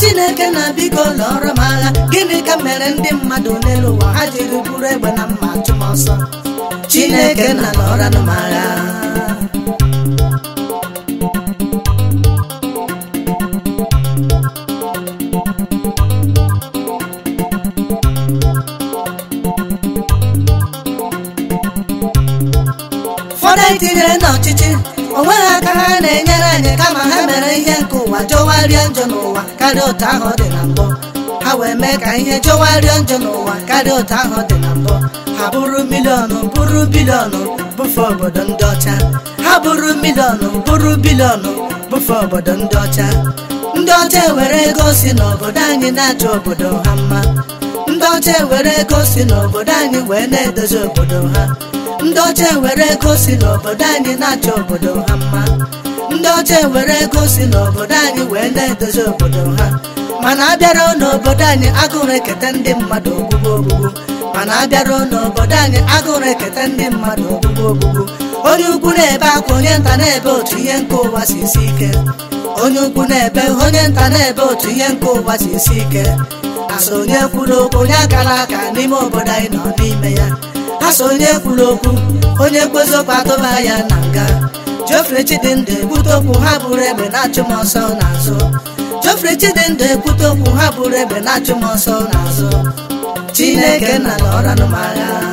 chineke na biko lọrọ m agha gịnị ka mere ndị mmadụ n'elu ha jiri bụrụ egbe na mma achụmọsọ chineke na lọrọ m anyị na n'ọchịchị onwe ha aka ha na-enyere anyị kama ha mere ihe nke ụwa jọwarịa njọ n'ụwa karịa otu ahụ dị na mbụ ha wee mee ka ihe jọwarịa njọ n'ụwa karịa otu ahụ dị na mbụ ha bụrụ miliọnụ bụrụ biliọnụ bụfe obodo ndị ọcha ha bụrụ miliọnụ bụrụ biliọnụ bụfe obodo ndị ọcha ndị ọcha ewere ego si n'obodo anyị na-achọ obodo ha mma ndị ọcha ewere ego n'obodo anyị wee na-edozi obodo ha ndị ọcha ego n'obodo anyị obodo anyị wee na-edozi obodo ha mana abịara n'obodo anyị agụrụ eketa ndị mmadụ ogbugbo mana abịara n'obodo anyị agụrụ eketa ndị mmadụ ogbugbo ogugo. onye ukwu na-ebe akwa onye nta na-ebe otu ihe nke si isi onye na onye nta na-ebe otu ihe nke ụwa si isi ike asonye kwuru okwu onye akara aka n'ime obodo anyị nọ n'ime ya asonye kwuru okwu onye kpozi okwu atụba ya na nga Geoffrey Chidindu egbute okwu ha bụrụ egbe na-achụ ọsọ n'azụ Geoffrey Chidindu egbute okwu ha bụrụ egbe na-achụ ọsọ n'azụ Chineke na ala ọra n'ụmụ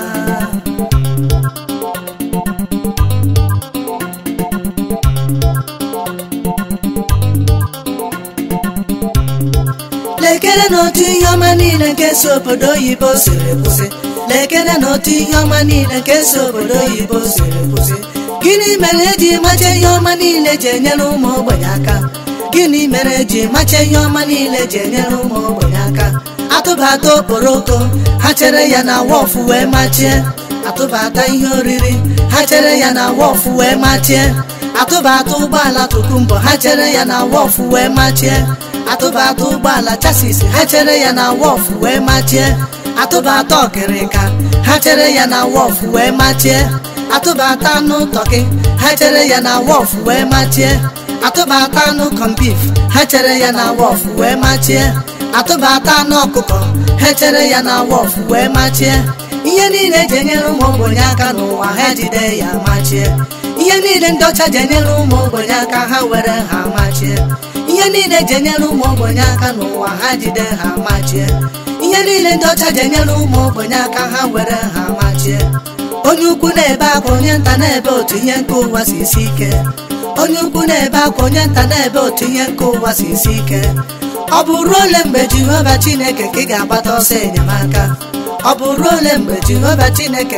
lekere n'otu ihe ọma niile nke si obodo oyibo siri kwụsị lekere ihe ọma niile nke si obodo oyibo siri kwụsị gịnị mere eji macha ihe ọma niile ji enyere ụmụ ogbenye aka gịnị mere eji macha ihe ọma niile ji enyere ụmụ ogbenye aka atụbata okporoko ha chere ya na wọfụ wee machie atụbata ihe oriri ha chere ya na wọfụ wee machie atụbata ụgbọala tụkụ mbọ ha chere ya na wọfụ wee machie atụbatụ ụgbọala chasis ha chere ya na wọfụ wee machie atụbatụ ọkịrịka ha chere ya na wọfụ wee machie atụbata anụ tọkị ha chere ya na wọfụ wee machie atụbata anụ kọmpif ha chere ya na wọfụ wee machie atụbata anụ ọkụkọ ha chere ya na wọfụ wee machie ihe niile eji enyere ụmụ ogbenye aka n'ụwa ha jide ya machie ihe niile ndị ọcha ji enyere ụmụ ogbenye aka ha were ha machie ihe niile ji enyere ụmụ ogbenye aka n'ụwa ha jide ha machie ihe niile ndị ọcha ji enyere ụmụ ogbenye aka ha nwere ha machie onye ukwu na-ebe akwa onye nta na-ebe otu ihe nke ụwa si isi ike ukwu na-ebe akwa onye nta na-ebe otu ihe nke ụwa si isi ike ọ bụ ruo ole mgbe jehova chineke ka chineke ka aka ọ bụ ruo ole mgbe jehova chineke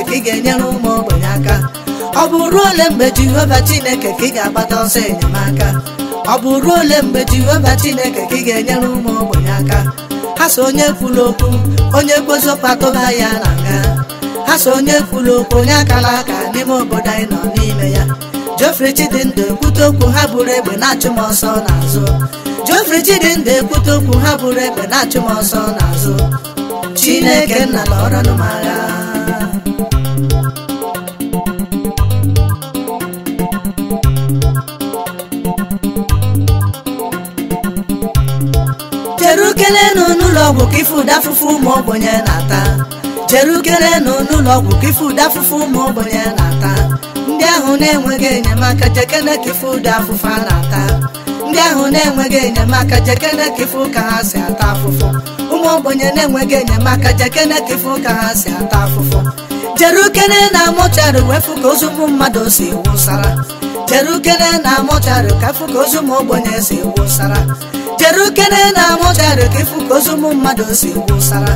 ka ị ga-agbata ọsọ enyemaka ọ bụ ruo ole mgbe jehova chineke ka ga-enyere ụmụ ogbenye aka ha so onye kwuru okwu onye ha ya na nga ha so onye kwuru okwu onye akara aka n'ime obodo anyị nọ n'ime ya Geoffrey Chidinda ekwute okwu ha bụrụ egbe na-achụ ọsọ n'azụ ekwute okwu ha bụrụ egbe na-achụ m n'azụ Chineke nna na agha ọgwụ ka ife ụda afụfụ ụmụ ogbenye na-ata jere ukere ụlọ ọgwụ ka ife ụda afụfụ ụmụ ogbenye na-ata ndị ahụ na-enweghị enyemaka jekene ka ife ụda afụfụ a na-ata ndị ahụ na-enweghị enyemaka jekene ka ife ụka ha si ata afụfụ ụmụ ogbenye na-enweghị enyemaka jekene ka ife ụka ha si ata afụfụ jere ukene na mụcharị wefu ka ozu ụmụ mmadụ si wụsara jere ukene na mụcharị ka fụ ka ozu ụmụ ogbenye si wụsara jere na amụjarị ka ịfụ ka ozu ụmụ mmadụ si wụsara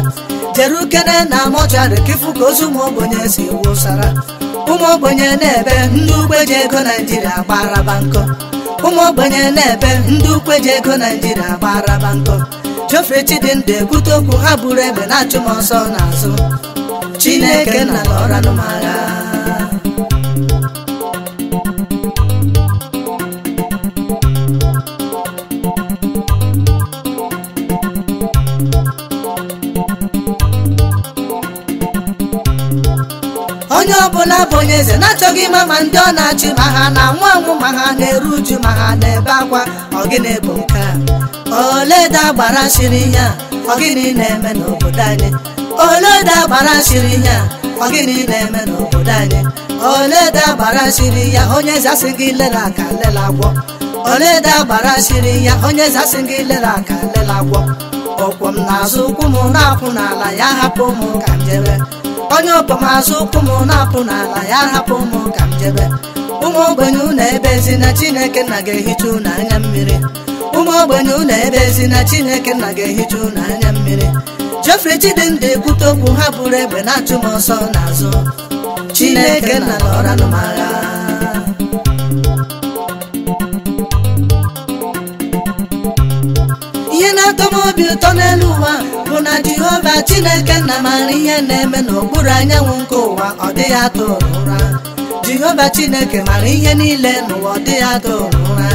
jere na amụjarị ka ịfụ ka ozu ụmụ ogbenye si wụsara ụmụ na-ebe ndị ukwe ji ego naijiria gbaraba nkọ ụmụ Chidinda na-ebe okwu ha buru ebe na achụmọsọ ọsọ n'azụ chineke na onye ọbụla bụ onye eze na-achọghị ịma ma ndị ọ na-achị ma ha na anwụ anwụ ma ha na-eru uju ma ha na-ebe akwa ọgịnị bụ nke a oleda gbara shiri ihe a ọgịnị na-eme n'obodo anyị oleda gbara shiri ihe a ọgịnị na-eme n'obodo anyị oleda gbara shiri ya onye eze asị gị lere aka lele agwọ oleda gbara shiri ya onye eze asị gị lere aka lele agwọ ọkwọ m n'azụ ụkwụ m na-akwụ n'ala ya hapụ m ka m jebe onye ọkwọ m azụ ụkwụ m na-akwụ n'ala ya hapụ m ka m jebe ụmụ ogbenye ụnụ ebe ezi na chineke nna ga-ehicha ụnụ anya mmiri ụmụ ogbenye ụnụ ebe ezi na chineke nna ga-ehicha ụnụ anya mmiri Jeffrey Chidindu ekwute okwu ha bụrụ egbe na-achụ m ọsọ n'azụ chineke nna na ọranụmagha ihe na-atọ obi ụtọ n'elu ụwa bụ na Jehova Chineke nna maara ihe na-eme n'okpuru anyanwụ nke ụwa ọ dịghị atọ ụra Jehova Chineke mara ihe niile n'ụwa ọ dịghị atọ ụra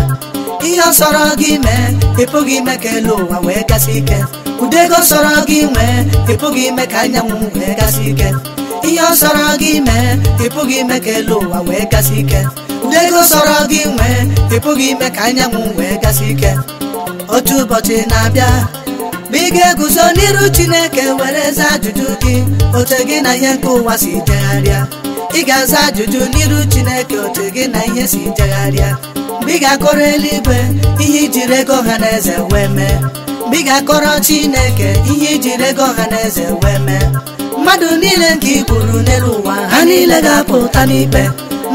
ihe ọ sọrọ gị mee ị pụghị ime ka elu ụwa wee gasị ike ụdị ego sọrọ gị nwee ị pụghị ime ka anyanwụ wee gasị ike ihe ọ sọrọ gị mee ị pụghị ime ka elu ụwa wee gasị ike ụdị ego sọrọ gị nwee ị pụghị ime ka anyanwụ wee gasị ike otu ụbọchị na-abịa ma ị ga-eguzo n'iru Chineke were zaa ajụjụ gị otu gị na ihe nke ụwa si jegharịa ị ga-aza ajụjụ n'iru Chineke otu gị na ihe si jegharịa mgbe ị ga-akọrọ eluigwe ihe ijiri ego ọha na eze wee mee mgbe ị ga-akọrọ Chineke ihe ijiri ego ọha na eze wee mee mmadụ niile nke i gburu n'elu ụwa ha niile ga-apụta n'ikpe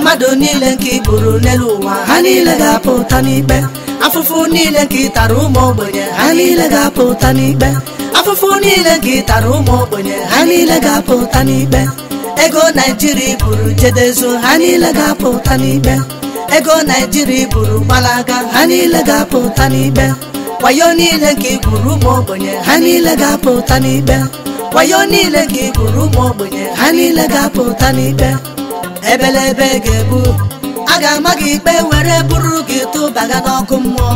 mmadụ niile nke ị n'elu ụwa ha niile ga-apụta n'ikpe afụfụ niile nke ị ụmụ ogbenye ha niile ga-apụta n'ikpe afụfụ niile nke ị ụmụ ogbenye ha niile ga-apụta n'ikpe ego naijiria buru jedezu ha niile ga-apụta n'ikpe ego naijiria buru gbalaga ha niile ga-apụta n'ikpe wayo niile nke ị ụmụ ogbenye ha niile ga-apụta n'ikpe wayo niile nke ị ụmụ ogbenye ha niile ga-apụta n'ikpe ebelebe ga-ebu a ga-ama gị ikpe were bụrụ gị tụbaga n'ọkụ mmụọ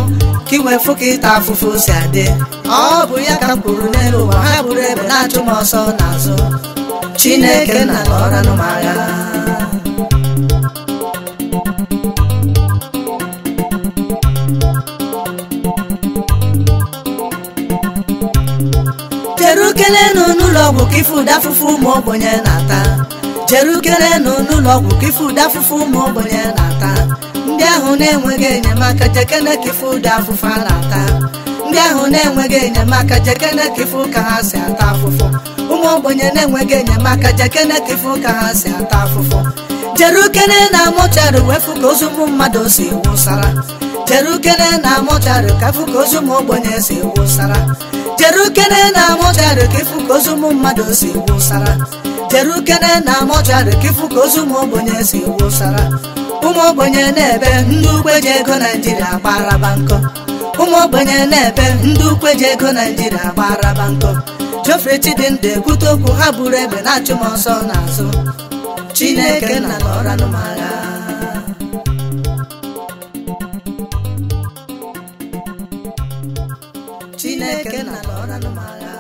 ka ị wee fụ ka ịta afụfụ si adị ọ bụ ya ka m kwuru n'elu ụwa ha gburu ebe na-achụ m ọsọ n'azụ Chineke na ọranụ m agha kedu kele nụ n'ụlọ ọgwụ ka ife ụda afụfụ ụmụ ogbenye na-ata jere ugerenụ n'ụlọ ọgwụ ka ife ụdị afụfụ ụmụ ogbenye na-ata ndị ahụ na-enweghị enyemaka jekene ka ife ụdị afụfụ a na-ata ndị ahụ na-enweghị enyemaka jekene ka ife ụka ha si ata afụfụ ụmụ ogbenye na-enweghị enyemaka jekene ka ife ụka ha si ata afụfụ jere na amụchari wefu ka ozu ụmụ mmadụ si wụsara jere na mọchari ka ka ozu ụmụ ogbenye si wụsara jere na mọchari ka ka ozu ụmụ mmadụ si wụsara jere ukene na mọchari ka ka ozu ụmụ ogbenye si wụsara ụmụ ogbenye na-ebe ndị ukwe ji ego naijiria gbaraba nkọ ụmụ na-ebe ndị ukwe ji ego naijiria gbaraba nkọ Geoffrey Chidindu ekwute okwu ha buru ebe na achụmọsọ ọsọ n'azụ Chineke na ọra